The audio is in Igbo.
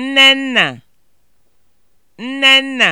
Nnenna Nnenna